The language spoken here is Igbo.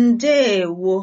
Ndeewo